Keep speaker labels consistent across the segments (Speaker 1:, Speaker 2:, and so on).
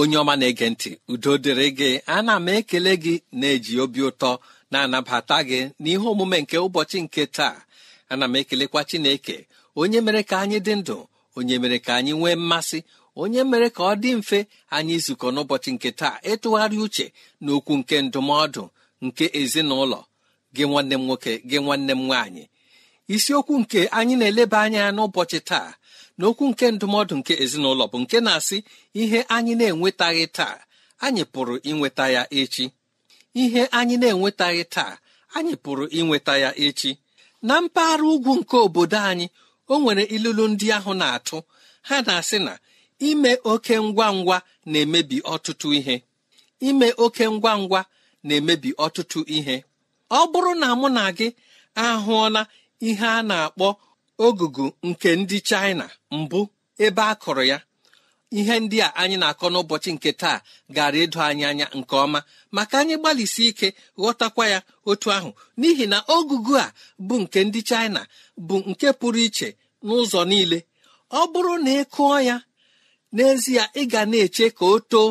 Speaker 1: onye ọma na-ege ntị udo dịrị gị ana m ekele gị na-eji obi ụtọ na-anabata gị n'ihe omume nke ụbọchị nke taa ana m ekelekwa Chineke onye mere ka anyị dị ndụ onye mere ka anyị nwee mmasị onye mere ka ọ dị mfe anyị izukọ n'ụbọchị nke taa ịtụgharị uche na okwu nke ndụmọdụ nke ezinụlọ gị nwanne m nwoke gị nwanne m nwaanyị isiokwu nke anyị na-eleba anya n'ụbọchị taa n'okwu nke ndụmọdụ nke ezinụlọ bụ nke na-asị ihe anyị na-enwetaghị taa anyị pụrụ inweta ya echi ihe anyị na-enwetaghị taa anyị pụrụ inweta ya echi na mpaghara ugwu nke obodo anyị o nwere ilulu ndị ahụ na-atụ ha na-asị na ime oke ngwa ngwa na-emebi ọtụtụ ihe ime oke ngwa ngwa na-emebi ọtụtụ ihe ọ bụrụ na mụ na gị ahụọla ihe a na-akpọ ogugu nke ndị China mbụ ebe a kụrụ ya ihe ndị a anyị na-akọ n'ụbọchị nke taa gara edo anyị anya nke ọma maka anyị gbalịsi ike ghọtakwa ya otu ahụ n'ihi na ogugu a bụ nke ndị China bụ nke pụrụ iche n'ụzọ niile ọ bụrụ na ị kụọ ya n'ezie ị ga na-eche ka o too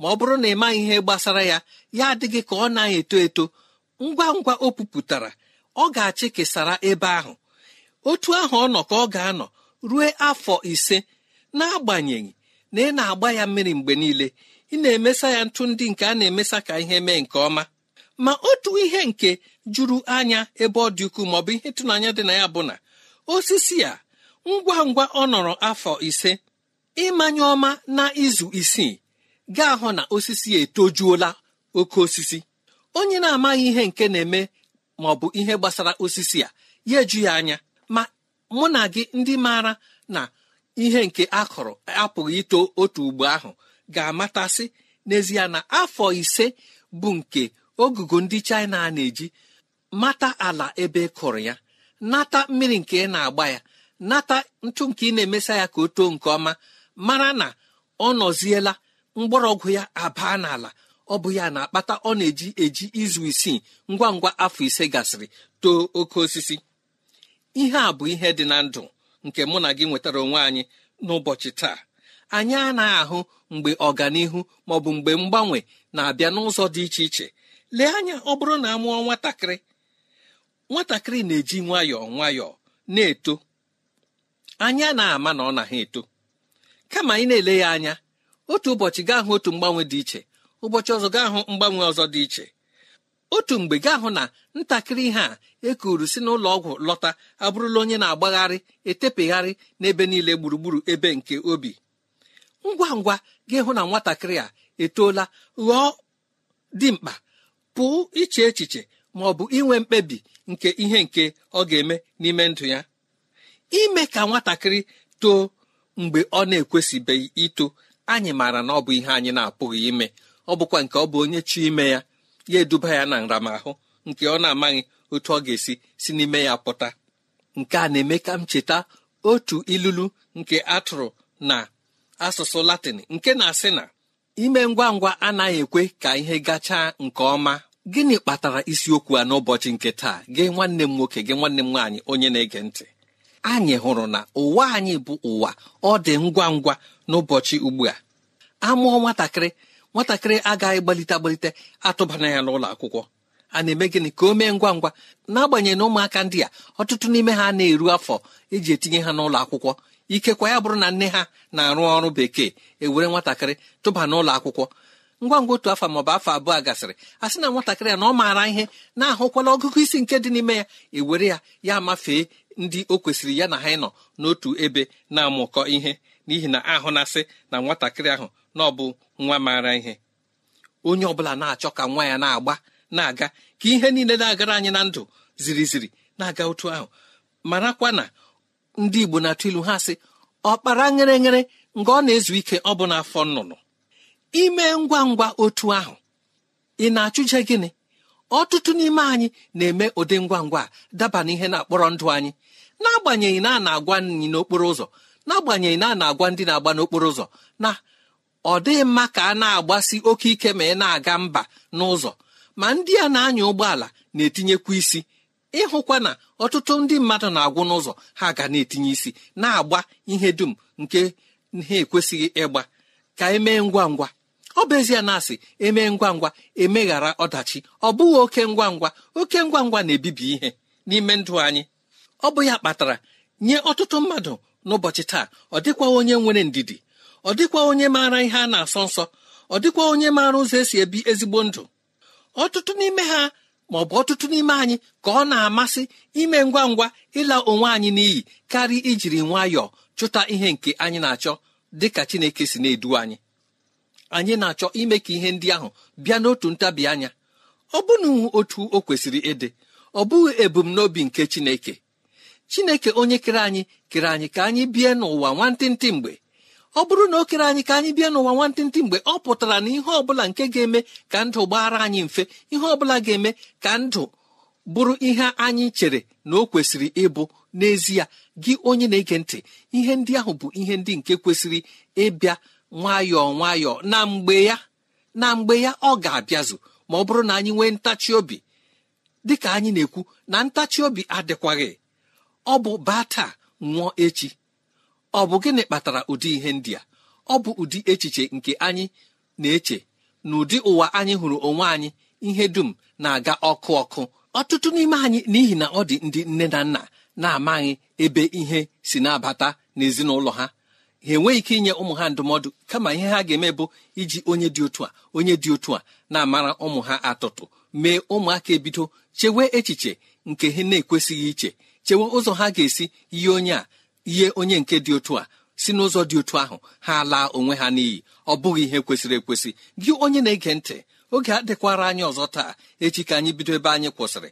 Speaker 1: ma ọ bụrụ na ị maghị ihe gbasara ya ya adịghị ka ọ na eto eto ngwa ngwa o pupụtara ọ ga-achị kesara ebe ahụ otu ahụ ọ nọ ka ọ ga-anọ ruo afọ ise n'agbanyeghị na ị na-agba ya mmiri mgbe niile ị na-emesa ya ntụ ndị nke a na-emesa ka ihe mee nke ọma ma otu ihe nke juru anya ebe ọ dị ukwuu ma ọ bụ ihe ịtụnanya dị na ya bụ na osisi a ngwa ngwa ọ nọrọ afọ ise ịmanye ọma na izu isii ga-ahụ na osisi ya etojuola oke osisi onye na-amaghị ihe nke na-eme ma ọ bụ ihe gbasara osisi a ya eju ya anya mụ na gị ndị maara na ihe nke a kọrọ apụghị ito otu ugbo ahụ ga-amatasị n'ezie na afọ ise bụ nke ogugo ndị China a na-eji mata ala ebe e kụrụ ya nata mmiri nke na-agba ya nata ntụ nke ị na-emesa ya ka o too nke ọma mara na ọ nọziela mgbọrọgwụ ya abaa n'ala ọ bụ ya na-akpata ọ na-eji eji izu isii ngwa ngwa afọ ise gasịrị too oke osisi ihe a bụ ihe dị na ndụ nke mụ na gị nwetara onwe anyị n'ụbọchị taa anyị anaghị ahụ mgbe ọganihu ma ọ bụ mgbe mgbanwe na-abịa n'ụzọ dị iche iche lee anya ọ bụrụ na a mụọ nwatakịrị nwatakịrị na-eji nwayọọ nwayọọ na-eto anya na-ama na ọ na ha eto kama ị na-ele ya anya otu ụbọchị gaa hụ otu mgbanwe dị iche ụbọchị ọzọ gaa hụ mgbanwe ọzọ dị iche otu mgbe gaa hụ na ntakịrị ihe a ekuru si n'ụlọ ọgwụ lọta abụrụla onye na-agbagharị etepegharị n'ebe niile gburugburu ebe nke obi ngwa ngwa ga-ehụ na nwatakịrị a etoola ghọọ dimkpa pụọ iche echiche ma ọ bụ inwe mkpebi nke ihe nke ọ ga-eme n'ime ndụ ya ime ka nwatakịrị too mgbe ọ na-ekwesịbeghị ito anyị maara na ọ bụ ihe anyị na-apụghị ime ọ bụkwa nke ọ bụ onye chi ime ya ya eduba ya na nramahụ nke ọ na-amaghị otu ọ ga-esi si n'ime ya pụta nke a na-eme ka m cheta otu ilulu nke atụrụ na asụsụ latịn nke na-asị na ime ngwa ngwa anaghị ekwe ka ihe gachaa nke ọma gịnị kpatara isiokwu a n'ụbọchị nke taa gị nwanne m nwoke gị nwanne m nwaanyị onye na-ege ntị anyị hụrụ na ụwa anyị bụ ụwa ọ dị ngwa ngwa n'ụbọchị ugbu a amụọ nwatakịrị nwatakịrị agaghị gbalite agbalite atụbana ya n'ụlọ akwụkwọ a na-eme gịnị ka o mee ngwa ngwa n'agbanyeghị na ụmụaka ndị a ọtụtụ n'ime ha na-eru afọ eji etinye ha n'ụlọ akwụkwọ ikekwa ya bụrụ na nne ha na-arụ ọrụ bekee ewere nwatakịrị tụba n'ụlọ akwụkwọ ngwa ngwa otu afọ maọbụ afọ abụọ gasịrị a sị na nwatakịrị ya na ọ maara ihe na-ahụkwala ọgụgụ isi nke dị n'ime ya ewere ya ya mafee ndị o kwesịrị ya na ha ịnọ n'otu ebe na-amụkọ ihe n'ihi na ahụ na-asị na nwatakịrị ahụ na ọ bụ nwa maara ihe onye ọ bụla na-achọ ka nwa ya na-agba na-aga ka ihe niile na-agara anyị na ndụ ziri ziri na-aga otu ahụ marakwa na ndị igbo na-atụ ilu ha sị ọkpara nyere nyere nga ọ na-ezu ike ọ bụ n'afọ nnụnụ ime ngwa ngwa otu ahụ ị na-achụje gịnị ọtụtụ n'ime anyị na-eme ụdị ngwa ngwa daba ihe na-akpọrọ ndụ anyị n'agbanyeghị na a na-agwa nyị n'okporo ụzọ n'agbanyeghị na a na-agwa ndị na-agba n'okporo ụzọ na ọ dịghị mma ka a na-agbasi oke ike ma ị na-aga mba n'ụzọ ma ndị a na-anya ụgbọala na-etinyekwa isi ịhụkwa na ọtụtụ ndị mmadụ na-agwụ n'ụzọ ha ga na-etinye isi na-agba ihe dum nke ha ekwesịghị ịgba ka emee ngwa ngwa ọ bụ ezie na asị emee ngwa ngwa emeghara ọdachi ọ bụghị oke ngwa ngwa oke ngwa ngwa na-ebibi ihe n'ime ndụ anyị ọ bụ ya kpatara nye ọtụtụ mmadụ n'ụbọchị taa ọ dịkwa onye nwere ndidi ọ dịkwa onye maara ihe a na-asọ nsọ ọ dịkwa onye maara ụzọ esi ebi ezigbo ndụ ọtụtụ n'ime ha ma ọ bụ ọtụtụ n'ime anyị ka ọ na-amasị ime ngwa ngwa ịla onwe anyị n'iyi karịa ijiri nwayọọ chụta ihe nke anyị na-achọ dị ka chineke si na-edu anyị anyị na-achọ ime ka ihe ndị ahụ bịa n'otu ntabi anya ọ bụna otu o kwesịrị ịdị ọ bụghị ebumnobi nke chineke chineke onye kere anyị kere anyị ka anyị bie n'ụwa nwantịntị mgbe ọ bụrụ na o kere anyị ka anyị bịa n'ụwa nwantịntị mgbe ọ pụtara na ihe ọbụla nke ga-eme ka ndụ gbaara anyị mfe ihe ọbụla ga-eme ka ndụ bụrụ ihe anyị chere na o kwesịrị ịbụ n'ezie gị onye na-ege ntị ihe ndị ahụ bụ ihe ndị nke kwesịrị ịbịa nwayọọ nwayọọ na mgbe ya na mgbe ya ọ ga-abịazụ ma ọ bụrụ na anyị nwee ntachi obi dịka anyị na-ekwu na ntachi obi adịkwaghị ọ bụ baa taa nwụọ echi ọ bụ gịnị kpatara ụdị ihe ndị a ọ bụ ụdị echiche nke anyị na-eche na ụdị ụwa anyị hụrụ onwe anyị ihe dum na-aga ọkụ ọkụ ọtụtụ n'ime anyị n'ihi na ọ dị ndị nne na nna na-amaghị ebe ihe si na-abata n'ezinụlọ ha ha enweghị ike inye ụmụ ha ndụmọdụ kama ihe ha ga-eme bụ iji onye dị otu a onye dị otu a na-amara ụmụ ha atụtụ mee ụmụaka ebido chewe echiche nke ha na-ekwesịghị iche chewe ụzọ ha ga-esi yie onye ihe onye nke dị otu a si n'ụzọ dị otu ahụ ha laa onwe ha n'iyi ọ bụghị ihe kwesịrị ekwesị gị onye na-ege ntị oge adịkwara anyị ọzọ taa echi ka anyị bido ebe anyị kwụsịrị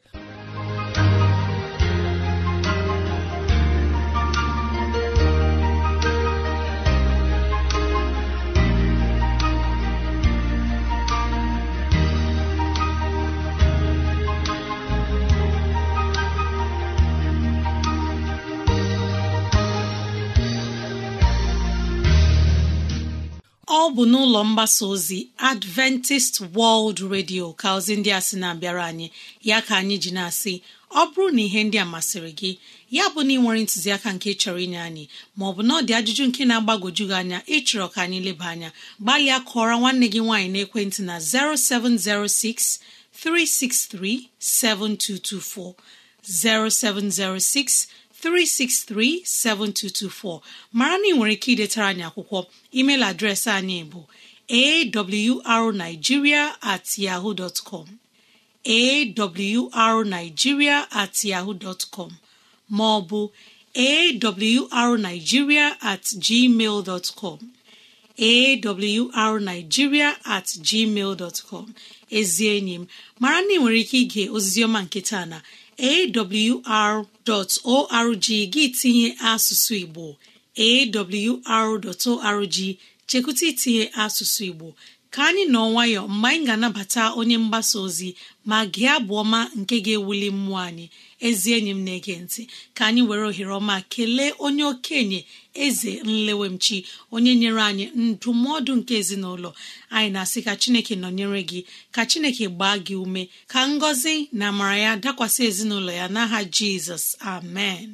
Speaker 2: ọ bụ n'ụlọ mgbasa ozi adventist world radio ka ozi ndị a sị na-abịara anyị ya ka anyị ji na-asị ọ bụrụ na ihe ndị a masịrị gị ya bụ na ị nwere ntụziaka nke chọrọ inye anyị maọbụ na ọ dị ajụjụ nke na-agbagoju gị anya ịchọrọ ka anyị leba anya gbalịa kụọrọ nwanne gị nwaanyị n'ekwentị na 0706 363 7224 363-7224 mara na nwere ike idetara anyị akwụkwọ emeil adreesị anyị bụ arigiria at at maọbụ ma ọ bụ at gmail com at gmail ezi enyi m mara na ị nwere ike ige oziziọma nke taa na awr.org gị tinye asụsụ Igbo awr.org chekwụta itinye asụsụ Igbo ka anyị nọ nwayọ mgbe anyị ga-anabata onye mgbasa ozi ma gị abụ ọma nke ga-ewuli mmụọ anyị ezi enyi m na-ege ntị ka anyị were ohere ọma kelee onye okenye eze nlewemchi onye nyere anyị ndụmọdụ nke ezinụlọ anyị na-asị ka chineke nọnyere gị ka chineke gbaa gị ume ka ngọzi na amara ya dakwasị ezinụlọ ya n'aha jizọs amen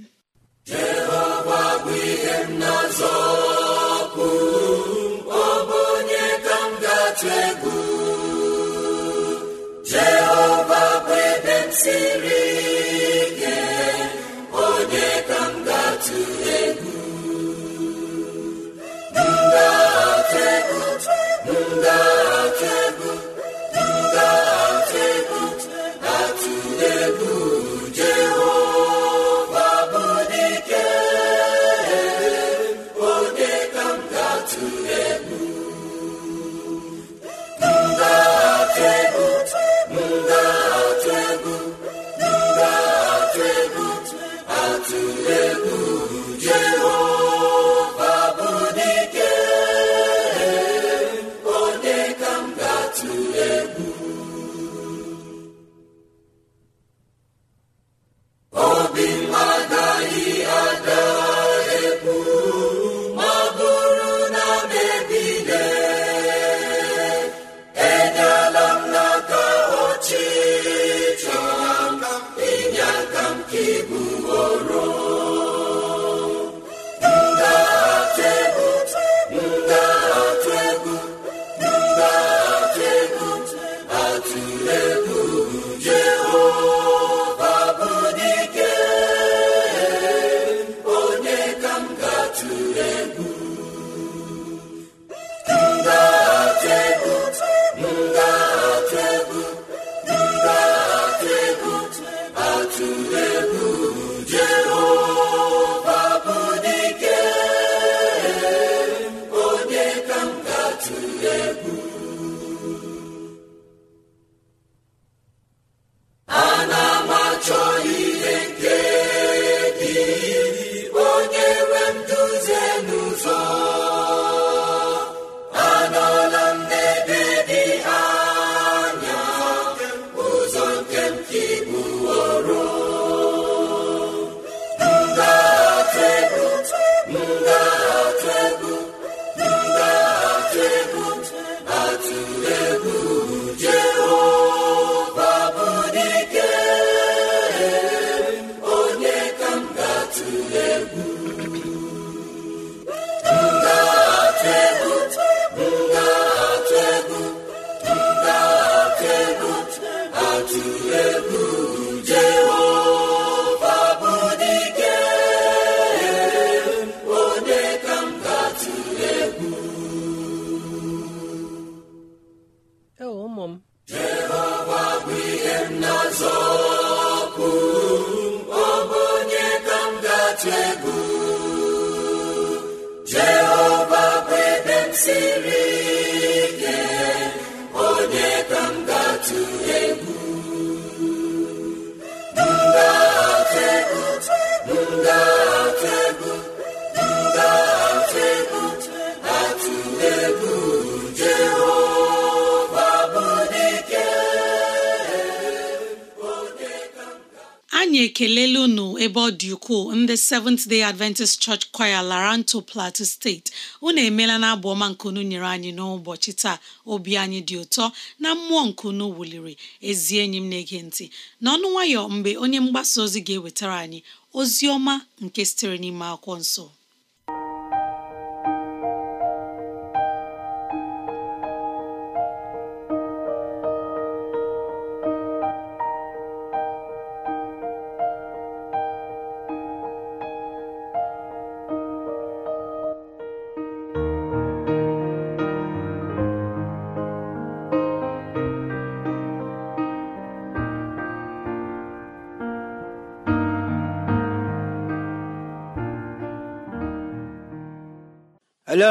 Speaker 2: the Seventh Day Adventist Church Choir Laranto Plateau steeti unu emeela na abụ ọma nkunu nyere anyị n'ụbọchị taa obi anyị dị ụtọ na mmụọ nkunu wuliri ezi enyi m na-ege ntị n'ọnụ nwayọ mgbe onye mgbasa ozi ga-ewetara anyị ozi ọma nke sitere n'ime akwụkwọ nsọ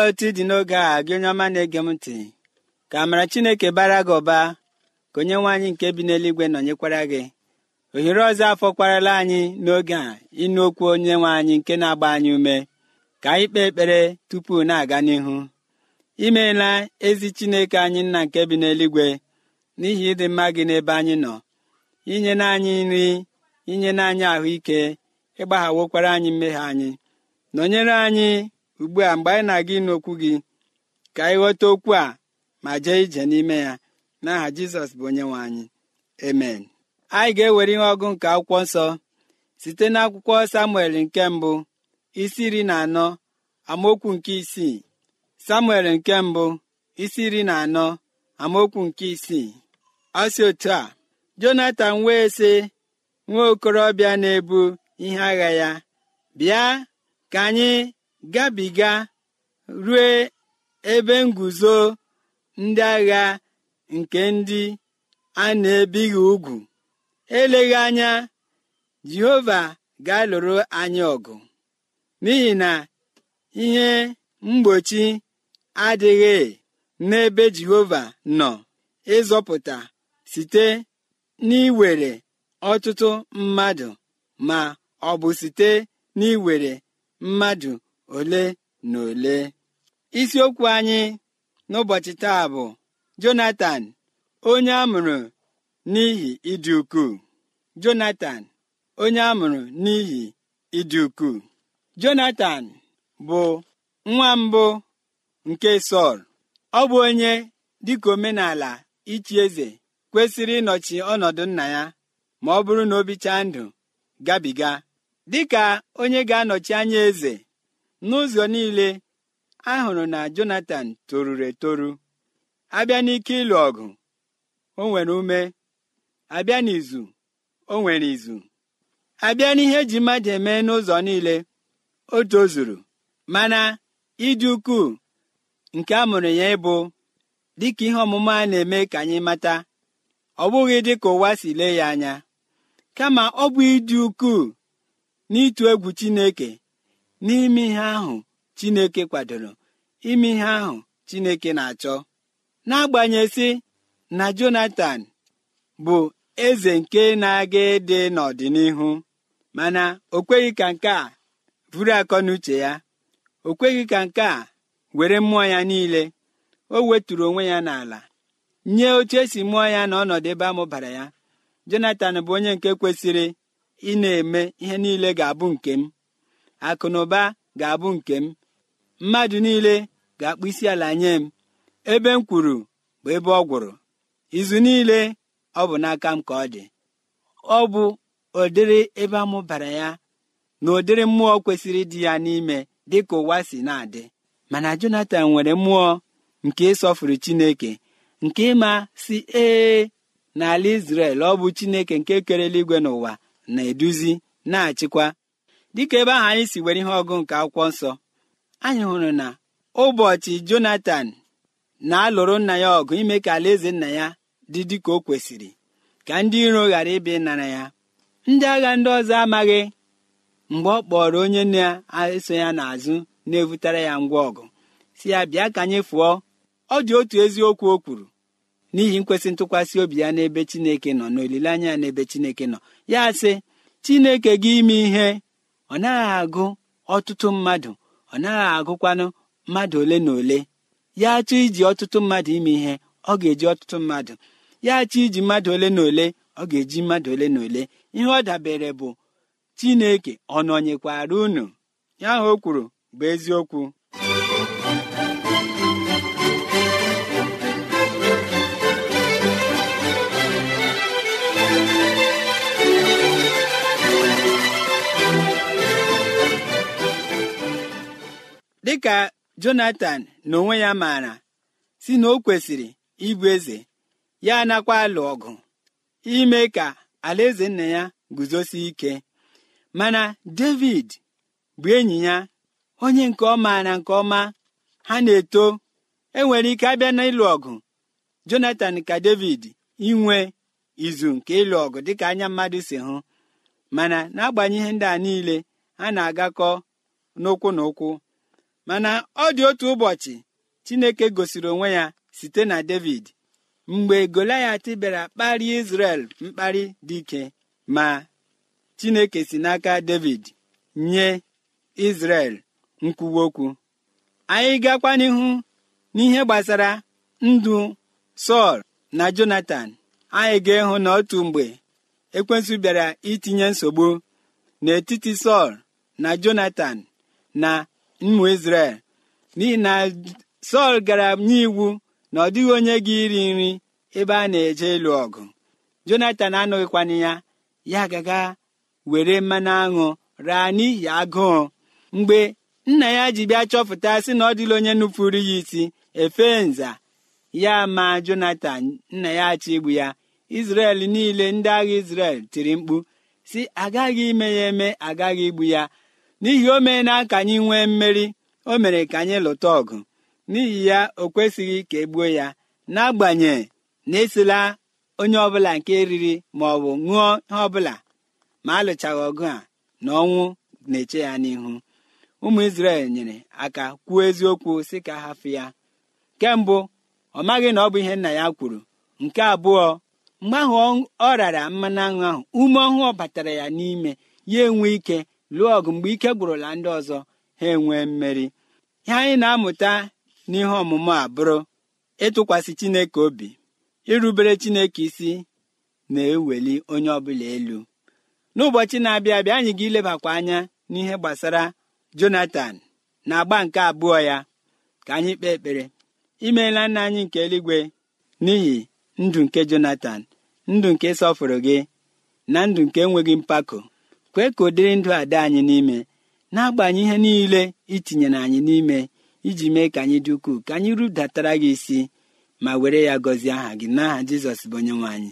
Speaker 3: otu dị n'oge a gị onye ọma na-ege m ntị ka amara chineke bara gị ụba ka onye nwe anyị nke bi n'eluigwe nọnyekwara gị ohere ọzọ afọkwarala anyị n'oge a ịnụ okwu onye nwe anyị nke na-agba anyị ume ka anyị kpee ekpere tupu na-aga n'ihu imeela ezi chineke anyị nna nke bi n'eluigwe n'ihi ịdị mma gị n'ebe anyị nọ inye n'anyị nri inye anyị ahụike ịgbaghawokwara anyị mmehie anyị nọnyere anyị ugbu a mgbe anyị na-aga ịnụ okwu gị ka anyị ghọta okwu a ma jee ije n'ime ya n'aha jizọs bụ onye nwe anyị amen anyị ga-ewere ihe ọgụ nke akwụkwọ nsọ site n'akwụkwọ samuel nke mbụ isi iri na anọ amaokwu nke isii samuel nke mbụ isi iri na anọ amaokwu nke isii ọsi otu a jonatan wee sị nwa okorobịa na-ebu ihe agha ya bịa ka anyị gabiga rue ebe nguzo ndị agha nke ndị a na-ebighị ugwu eleghị anya jehova ga-alụrụ anyị ọgụ n'ihi na ihe mgbochi adịghị n'ebe jehova nọ ịzọpụta site n'iwere ọtụtụ mmadụ ma ọ bụ site n'iwere mmadụ ole na ole isiokwu anyị n'ụbọchị taa bụ jonatan onye amụrụ n'ihi ịdị ukwuu jonatan onye amụrụ n'ihi ịdị ukwuu jonatan bụ nwa mbụ nke sọl ọ bụ onye dịka omenala ichi eze kwesịrị ịnọchi ọnọdụ nna ya ma ọ bụrụ na o bichaa ndụ gabiga dịka onye ga-anọchi anya eze n'ụzọ niile ahụrụ na Jonatan toruru etoru abịa n'ike ịlụ ọgụ o nwere ume abịa n'izu o nwere izu abịa n'ihe ji mmadụ eme n'ụzọ niile o tozuru mana ịdị ukwuu nke a mụrụ ya ịbụ dịka ihe ọmụma a na-eme ka anyị mata ọ bụghị dịka ụwa si lee ya anya kama ọ bụ ịdị ukwuu n'ịtụ egwu Chineke n'ime ihe ahụ chineke kwadoro ime ihe ahụ chineke na-achọ n'agbanyeghị na jonathan bụ eze nke na-aga ịdị n'ọdịnihu mana o kweghị ka nke a buru akọ n'uche ya o kweghị ka nke a were mmụọ ya niile o weturu onwe ya n'ala nye oche esi mụọ ya na ọnọdụ ebe amụbara ya jonatan bụ onye nke kwesịrị ị na-eme ihe niile ga-abụ nke m akụnụba ga-abụ nke m mmadụ niile ga-akpụ isi ala nye m ebe m kwuru bụ ebe ọ gwụrụ izu niile ọ bụ n'aka m ka ọ dị ọ bụ ụdịrị ebe amụbara ya na ụdịrị mmụọ kwesịrị dị ya n'ime dị ka ụwa si na-adị mana Jonatan nwere mmụọ nke ịsọfụrụ Chineke nke ịma si ee n'ala Izrel ọ bụ Chineke nke kerela igwe n'ụwa na-eduzi na-achịkwa dịka ebe ahụ anyị si were ihe ọgụ nke akwụkwọ nsọ anyị hụrụ na ụbọchị jonathan na-alụrụ nna ya ọgụ ime ka alaeze nna ya dị dịka o kwesịrị ka ndị iro ghara ịbịa ịnara ya ndị agha ndị ọzọ amaghị mgbe ọ kpọrọ onye na-eso ya n'azụ na-evutara ya ngwa ọgụ si ya bịa ka anyị fụọ ọ dị otu eziokwu o kwuru n'ihi nkwesị ntụkwasị obi ya n'ebe Chineke nọ n'olileanya ya n'ebe Chineke nọ ya sị Chineke gị ime ihe ọ naghị agụ ọtụtụ mmadụ ọ naghị agụkwanụ mmadụ ole na ole ya chọọ iji ọtụtụ mmadụ ime ihe ọ ga-eji ọtụtụ mmadụ ya chọọ iji mmadụ ole na ole ọ ga-eji mmadụ ole na ole ihe ọ dabere bụ chineke ọ nọnyekwara unu ya ahụ o kwuru bụ eziokwu dịka Jonatan na onwe ya maara si na o kwesịrị ịbụ eze ya anakwa alụ ọgụ ime ka alaeze nna ya guzosie ike mana David bụ enyi ya onye nke ọma na nke ọma ha na-eto enwere ike abịa na-ịlụ ọgụ Jonatan ka David inwe izu nke ịlụ ọgụ dịka anya mmadụ si hụ mana n'agbanyeghị ndị a niile ha na-agakọ n'ụkwụ na ụkwụ mana ọ dị otu ụbọchị Chineke gosiri onwe ya site na David mgbe Goliath bịara kparịa Israel mkparị dị ike ma Chineke si n'aka David nye Israel nkwuwa okwu anyị gakwa n'ihu n'ihe gbasara ndụ Sọl na Jonatan anyị ga-ịhụ n'otu mgbe ekwensu bịara itinye nsogbu n'etiti Sọl na jonathan na mmụ Izrel n'ihi na Sọl gara iwu na ọ dịghị onye gị iri nri ebe a na-eje ịlụ ọgụ Jonatan anụghịkwana ya ya gaga were mmanụ aṅụ raa n'ihi agụụ mgbe nna ya ji bịa chọpụta sị na ọ dịla onye nupụrụ ya isi efe nza ya ma Jonatan nna ya achọ igbu ya Izrel niile ndị agha Izrel tiri mkpu si agaghị ime ya eme agaghị igbu ya n'ihi o na ka anyị nwee mmeri o mere ka anyị lụta ọgụ n'ihi ya o kwesịghị ka e gbuo ya n'agbanyeghị na esila onye ọbụla nke riri ma ọ bụ ṅụọ ihe ọbụla ma alụchaghị ọgụ a na ọnwụ na-eche ya n'ihu ụmụ Izrel nyere aka kwuo eziokwu sị ka hafụ ya nke ọ maghị na ọ bụ ihe nna ya kwuru nke abụọ mgbe ahụ ọ rara mmanụ aṅụ ahụ ume ọhụụ batara ya n'ime ya enwe ike lụọ ọgụ mgbe ike gwụrụla ndị ọzọ ha enwee mmeri ihe anyị na-amụta n'ihe ọmụmụ a bụrụ ịtụkwasị Chineke obi irubere Chineke isi na-eweli onye ọbụla elu n'ụbọchị na-abịa abịa anyị ga-ilebakwa anya n'ihe gbasara Jonatan na agba nke abụọ ya ka anyị kpee ekpere imeela nna anyị nke eluigwe n'ihi ndụ nke Jonatan ndụ nke sọfụrụ gị na ndụ nke enweghị mpako kwee ka ụdịrị ndụ a dị anyị n'ime na-agbanye ihe niile itinyere anyị n'ime iji mee ka anyị dị ukwuu ka anyị rudatara gị isi ma were ya gọzie aha gị n'aha jizọs bụ onye nwe anyị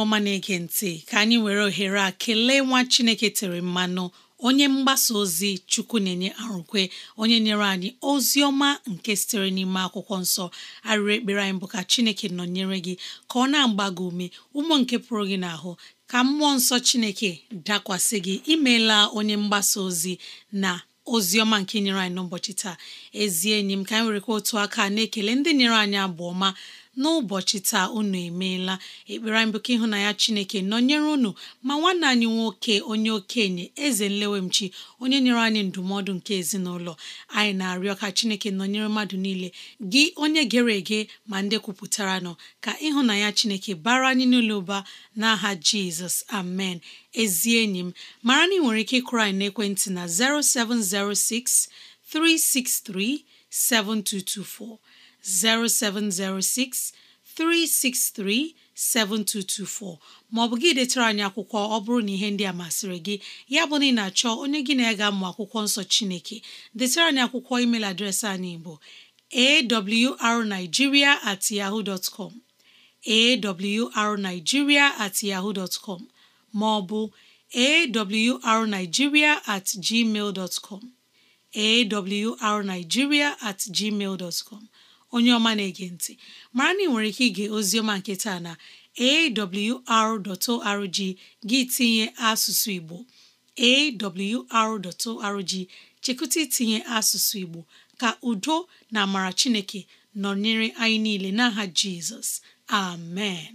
Speaker 2: ọma na-ege ntị ka anyị were ohere a kelee nwa Chineke tere mmanụ onye mgbasa ozi chukwu na-enye arụkwe onye nyere anyị ozi ọma nke sitere n'ime akwụkwọ nsọ arịrị ekpere anyị bụ ka chineke nọnyere gị ka ọ na-agba gị ume ụmụ nke pụrụ gị n'ahụ ka mmụọ nsọ chineke dakwasị gị imeela onye mgbasa ozi na ozi ọma nke nyere anyị n'ụbọchị taa ezi enyi m ka anyị werekwa otu aka na-ekele ndị nyere anyị abụ ọma n'ụbọchị taa unu emeela ekpere anyị bụ ka ịhụnanya Chineke nọnyere unu ma nwanne anyị nwoke onye okenye eze nlewemchi onye nyere anyị ndụmọdụ nke ezinụlọ anyị na-arịọ ka Chineke nọnyere mmadụ niile gị onye gere ege ma ndị kwupụtara nọ ka ịhụnanya Chineke bara anyị n'ụlọ ụba n'aha Jizọs amen ezi enyi m mara na ị nwere ike ịkụrụ anyị n'ekwentị na 0706 363 7224 0706 363 7224 maọbụ gị detara anyị akwụkwọ ọ bụrụ na ihe ndị a masịrị gị ya bụ na ị na-achọ onye gị na-ega mmụ akwụkwọ nsọ Chineke detara anyị akwụkwọ email adreesị anyị bụ awrnigeria at yahoo dot com at maọbụ arigiria at gmail at gmail dot onye ọma na-ege ntị mara na ị nwere ike ige oziọma nke taa na awr.org gị tinye asụsụ Igbo awr.org chekụta itinye asụsụ Igbo ka udo na amara Chineke nọnyere anyị niile n'aha Jizọs amen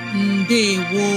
Speaker 2: wọ